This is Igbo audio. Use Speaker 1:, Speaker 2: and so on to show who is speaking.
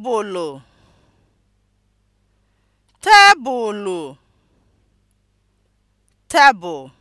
Speaker 1: tebụlụ tebụl